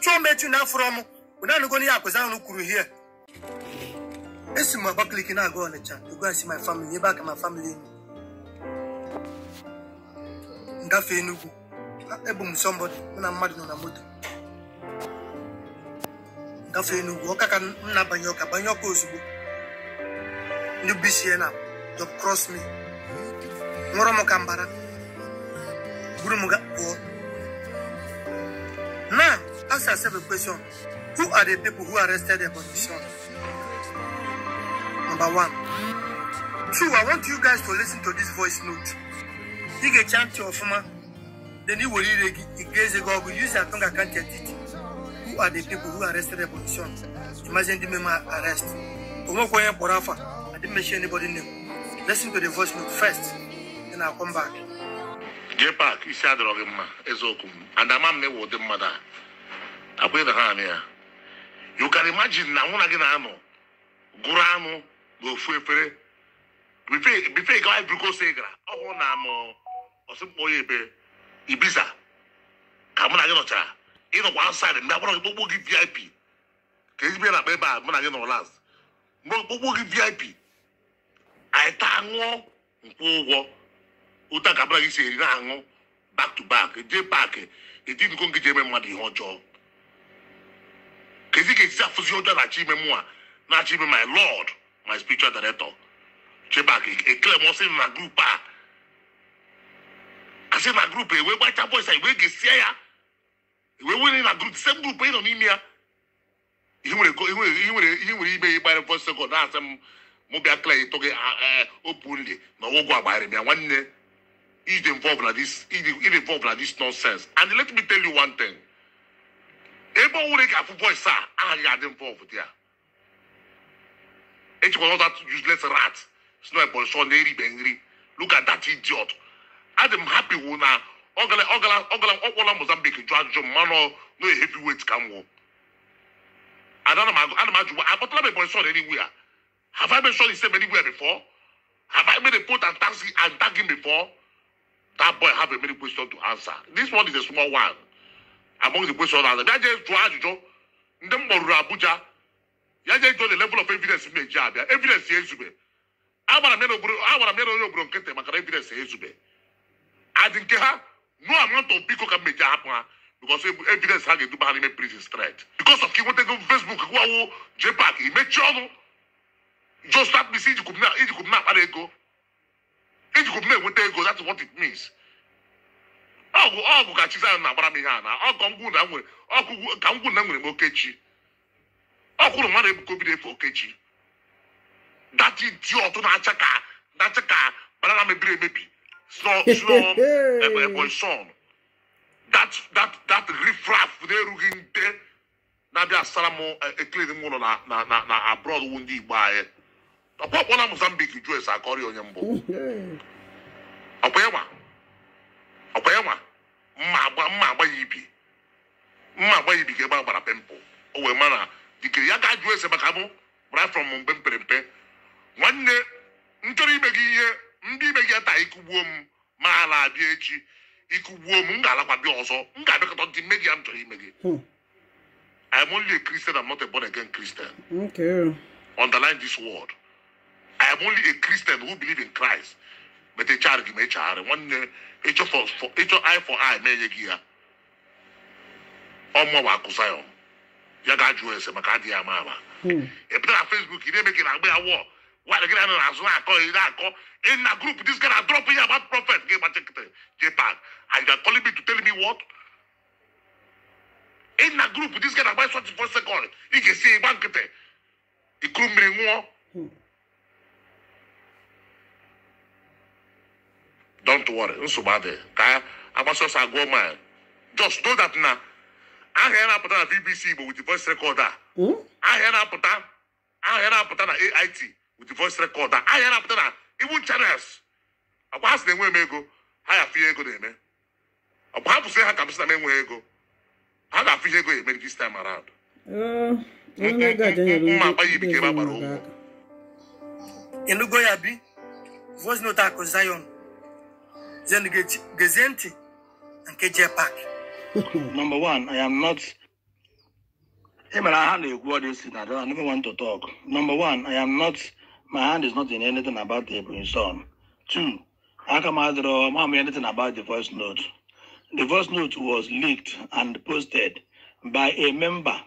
otu omechu na afọrọ m bụ nanụgo ihe akụzi anụ kwuru hie esi m Abakaliki na-aga Ọnịcha to go and see my family ebe aka ma family m Enugu ebu m somebody mụ na mmadụ nọ na moto gafe Enugu ọka ka m na-abanye ọka banye ọka ozugbo ndị bụisie na dọb cross me nwụrọ m ka mbara buru m pụọ ask yourself a question. Who are the people who arrested the on Number one. Two, I want you guys to listen to this voice note. You get chant your former, then you will read against the God. Use your tongue, I can't get it. Who are the people who arrested the opposition? Imagine the member arrest. I didn't mention anybody name. Listen to the voice note first, then I'll come back. Jay Park, isi adịrọghị mma eziokwu m and ama m na ịwụ ụdị mmadụ a abụghị na ha anị ya you can na mụ gị na-anọ gụrụ anụ n'ofu efere bife gawa ibrikose gara ọhụụ na anọ ọsịkpọ ya ebe ibiza ka mụ na gị nọchara ịnọkwa outside mgbe agbara okpokpo gị vip ka ezigbo na akpa ebe a mụ na gị nọ last mgbe okpokpo gị vip anyị taa ṅụọ nkwụ ụgwọ ụta ka mụ gị si eri na-aṅụ back to back jee paakị ejidiko ngị ji eme mmadụ ihe ọjọọ kesi kesi afusi ọjọ na achi ime mu a na achi ime my lord my spiritual director chebak ekele m ọsị na grup a asị na grup ewee gbacha bọis a ewee gesia ya ewee were na grup sem grup ị nọ n'ime ya ihe nwere ihe nwere ihe nwere ime ịgbara fọ sekọnd na-asị m mụ bịa kele ịtụ gị openly na ọgwụgwụ agbaghịrị m ya nwanne iji involve na this iji involve na this nonsense and let me tell you one thing ebe ọwụrụ ka afụbọ isa agaghị adị mfe ọfụdị ya echekwa ọta useless rat si na ebonyi sọ na-eribe nri look at that idiot adị m happy wụ na ọgala ọgala ọgala ọkpọla mozambique jụ ajụjụ mmanụ no heavyweight ka m wụ ada na m ajụ gwa akpọtala m ebonyi sọ na eriwe ya have i been sure he said anywhere before have i made a point and tag and tag him before that boy have a many question to answer this one is a small one among the question answer bịa jee jụọ ajụjụ ndị m kpọruru abuja ya jee jụọ the level of evidence m na-eji abịa evidence ya ezube agbara m ya na onye obodo nkịtị maka na evidence ya ezube adị nke ha no amount of biko ka m meji ahapụ ha because evidence ha ga-eduba ha n'ime prison straight because of ka ịnwetago facebook gwawo jpak imechie ọnụ just start that means ijikwub na-akpara ego ijikwub na-enweta ego that's what it means ọgwụ ọgwụ ka Chizzy na-agbara m ihe a na ọkụ ngwụ na nwere ọkụ ka ngwụ na nwere m okechi ọkwụrụ mmadụ ebuka obi na-efe okechi dati di ọtụ na-acha ka na-acha ka banana mebiri emebi son eh, eh, that that that rifraf na-erughị nde na-abịa asara m eh, eklin m ụlọ na na na abroad wu ndị igbo anyị ọkpọkpọ na Mozambique jụ esi akọrị onye mbụ ọkpa ịwa agba ibiga gba agbara pịmpụl o wee mana dike ya ga jụọ ese maka mụ right from mbe m pere mpe nwanne m ime gị ihe ndị ibe gị taa ịkụgbuo m ma ala abịa echi ikugbuo m m ga kwa bi ọzọ nga ga-abịakọta ndị mme gị ya m chọrọ only a Christian, I'm not a born again Christian. Okay. Underline this word. I am only a Christian who believe in Christ. But a me One for, for ọmọ wa kusa yọ hmm. ya ga ju ẹsẹ maka adi ama ama epi na facebook yi n'emeke agbe awọ wa de gina na azụ akọ yi na akọ in na group this guy na drop yi about prophet gị gbata kete jpag and you are calling me to tell me what in na group this guy na agba twenty four second ị ga-esi ịgba nkịtị ikuru mmiri nwụọ. don't worry nsogbu adịghị ka agbasa ọsọ agụọ just know that na. ahịa ya na-apụta na bbc Igbo with voice recorder ahịa ya na-apụta ahịa ya na-apụta na AIT with voice recorder ahịa ya na-apụta na Igbo channels ọkwa ha sị na enwe m ego ha ya afụnye ego na-eme ọkwa ha pụsị ha ka m na m enweghị ego ha ga ihe ego eme this time around eh, mma akpa ya ibike ebe a gbara ụgwọ elugo ya bi voice note akụ Zion zen gezie ntị na nke J Park number one, I am not. Hey man, I hand you this I don't. I never want to talk. Number one, I am not. My hand is not in anything about the brainstorm. Two, I can out draw. I'm anything about the voice note. The voice note was leaked and posted by a member,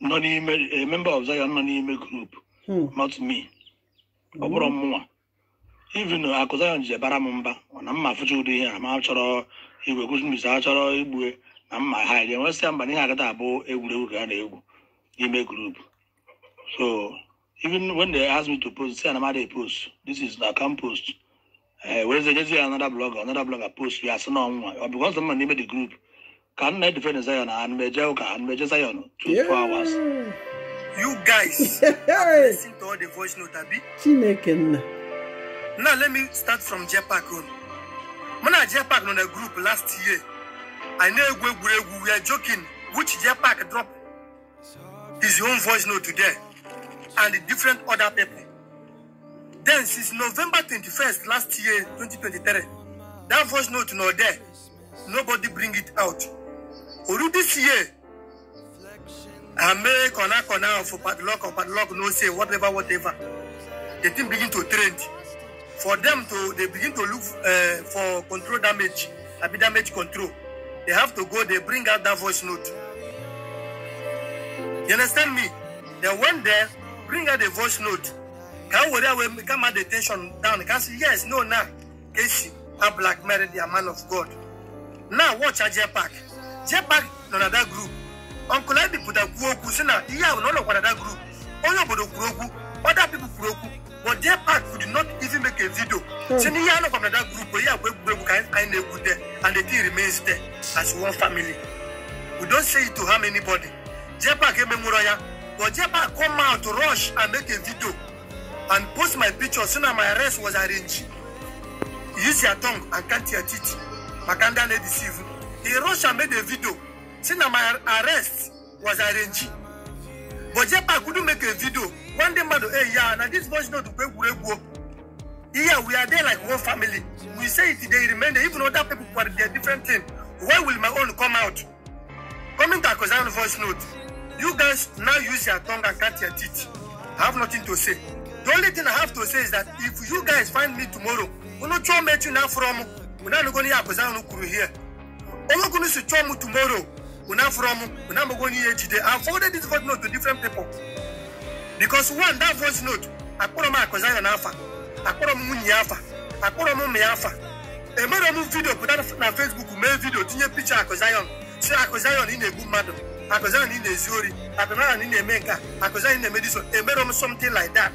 non a member of Zion non-email group, hmm. not me. Mm. even uh, akụzayon ji bara m mba na mma afụcha ụdị ihe a chọrọ igwe kụzi a chọrọ igbue na mma ha ga-enwesị mba na ihe agata abụ egwuregwu ka a na-egwu n'ime gurupu so even when they ask me to post say na anamada post this is na account post eh, werezenyezi ya another blogger another blogger post ya asị na ọnwa ọ bụkwa ọzọ mma n'ime the group ka nna e defend Zion na anmeje ụka anmeje Zion two four hours you guys listen to all the voice note abi chineke nna Now let me start from Jetpack Road. When I Jetpack on a group last year, I know we, we, we were joking which Jetpack dropped his own voice note today and different other people. Then since November 21st last year, 2023, that voice note not there. Nobody bring it out. Already this year, I make on a corner for padlock or padlock, no say, whatever, whatever. The thing begin to trend for them to they begin to look uh, for control damage abi damage control they have to go they bring out that voice note you understand me they went there bring out the voice note can worry away come out the tension down can say yes no now nah. keshi a black married a man of god now watch a jpack jpack no na that group uncle ebi put a kuoku say na group sister as one family. We don't say it to harm anybody. Jepa came Muraya, but Jepa come out to rush and make a video and post my picture soon as my arrest was arranged. Use your tongue and cut your teeth. Makanda lady deceive. He rushed and made a video. Soon as my arrest was arranged. But Jepa couldn't make a video. One day, man, hey, yeah, now this voice not to pay Yeah, we are there like one family. We say it, they remain there, even other people who are there, different thing. Why will my own come out? Coming to a voice note, you guys now use your tongue and cut your teeth. I have nothing to say. The only thing I have to say is that if you guys find me tomorrow, we not try met you now from we not going to Akozan Kuru here. All going to try tomorrow. We not from we not going here today. I forwarded this voice note to different people because one that voice note, I put on my cousin and Alpha. akpọrọ m nwunye afa akpọrọ m ụmụ ya afa emere m vidio pụta na fesbuk mee vidio tinye picha akụ zayon si akụ ị na-egbu mmadụ akụ ị na-ezu ori akụ ị na-eme nke akụ zayon ị na-eme diso emere m something like that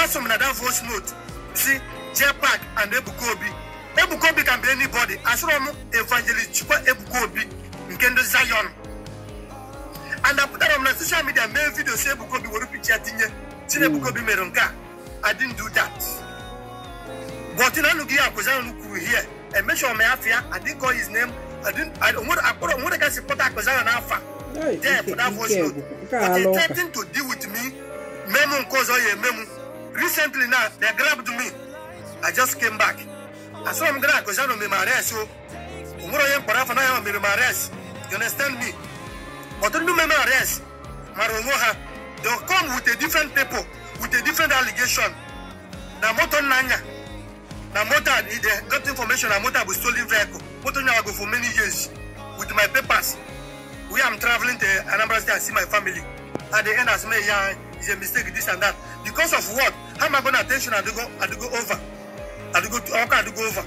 asụ m na that voice note si pak and ebukobi Obi Ebuka Obi can asụrọ m evangelist chikwa ebukobi nke ndị zayon and apụtara m na soshal midia mee vidio si ebukobi were picha tinye si na mere nke a I didn't do that. But in because I was here. And make sure my afia, I didn't call his name. I didn't, I don't want to put on what I can because I am an alpha there for that voice note. But attempting to deal with me, Memo cause oh, all Memo. Recently now, they grabbed me. I just came back. I saw him grab because I know me arrest. So, Umuro Yem Parafa, I am me arrest. You understand me? But don't know me arrest. Marongoha, they'll come with a different people. with a different allegation na motor nanya na motor i need got information na motor be stolen vehicle motor nanya go for many years with my papers wey i'm traveling to anambra state and see my family at the end as me yan is a mistake this and that because of what how am i gonna attention adugo go over I go adugo oka go over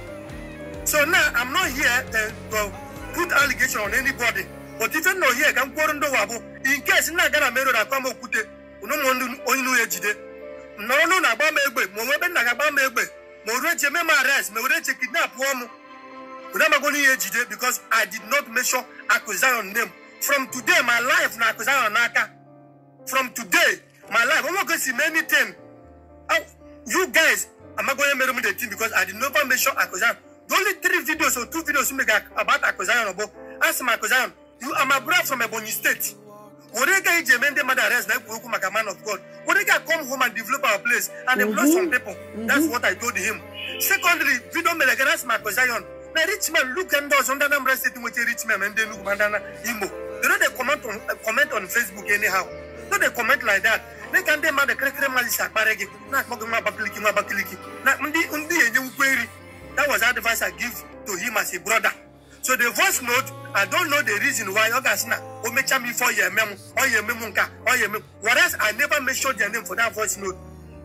so now i'm not here uh, to put allegation on anybody but even though here ka m kworo ndị ụwa in case nna gana mere ụra akwa m okwute onye nu ya ejide na ọnụ na-agba m egbe ma onwe ebe nna ga agba m egbe ma o reche eme m arrest ma o reche kidnap m wena amagwo n'ihe ejide because i did not mention accusation name from today my life na accusation n'aka from today my life onwe go see many things oh, you guys amagwo onye mere m the team because i did not mention accusation the only three videos or two videos you make about accusation bụ asị m accusation you are my brother from ebonyi state Orega e Jemen de Madares na Kuku Maka man of God. Orega come home and develop our place and employ mm -hmm. some people. Mm-hmm. That's mm -hmm. what I told him. Secondly, don't Vido my Makozayon. Now, rich man look and does under number sitting with a rich man and they look bandana Imo. Do not they comment on uh, comment on Facebook anyhow. No, they comment like that. They can demand the cracker malisa baregi. Not mocking my bakliki, my bakliki. Not undi undi and you query. That was advice I give to him as a brother. so the voice note i don't know the reason why oga sina o mecha for your memo or your memo nka or your memo whereas i never make mentioned their name for that voice note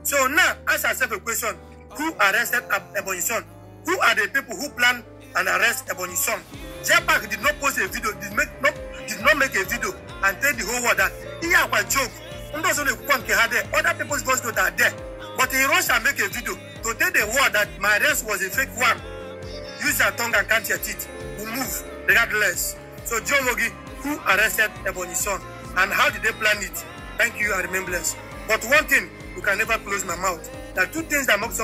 so now ask yourself a question who arrested ebonyi son who are the people who plan and arrest ebonyi son jepak did not post a video did make not did not make a video and tell the whole world that ihe akwa joke ndị ọzọ na-ekwukwa nke ha there other people's voice note are there but he rush make a video to tell the world that my arrest was a fake one use your tongue and count your teeth move regardless. So Joe Logi, who arrested Ebony Son, and how did they plan it? Thank you, I remember blessed. But one thing, you can never close my mouth. There are two things that mocks up.